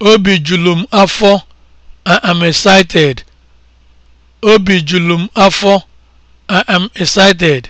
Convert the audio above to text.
Obi julu m afọ, I am excited. afọ, I am excited.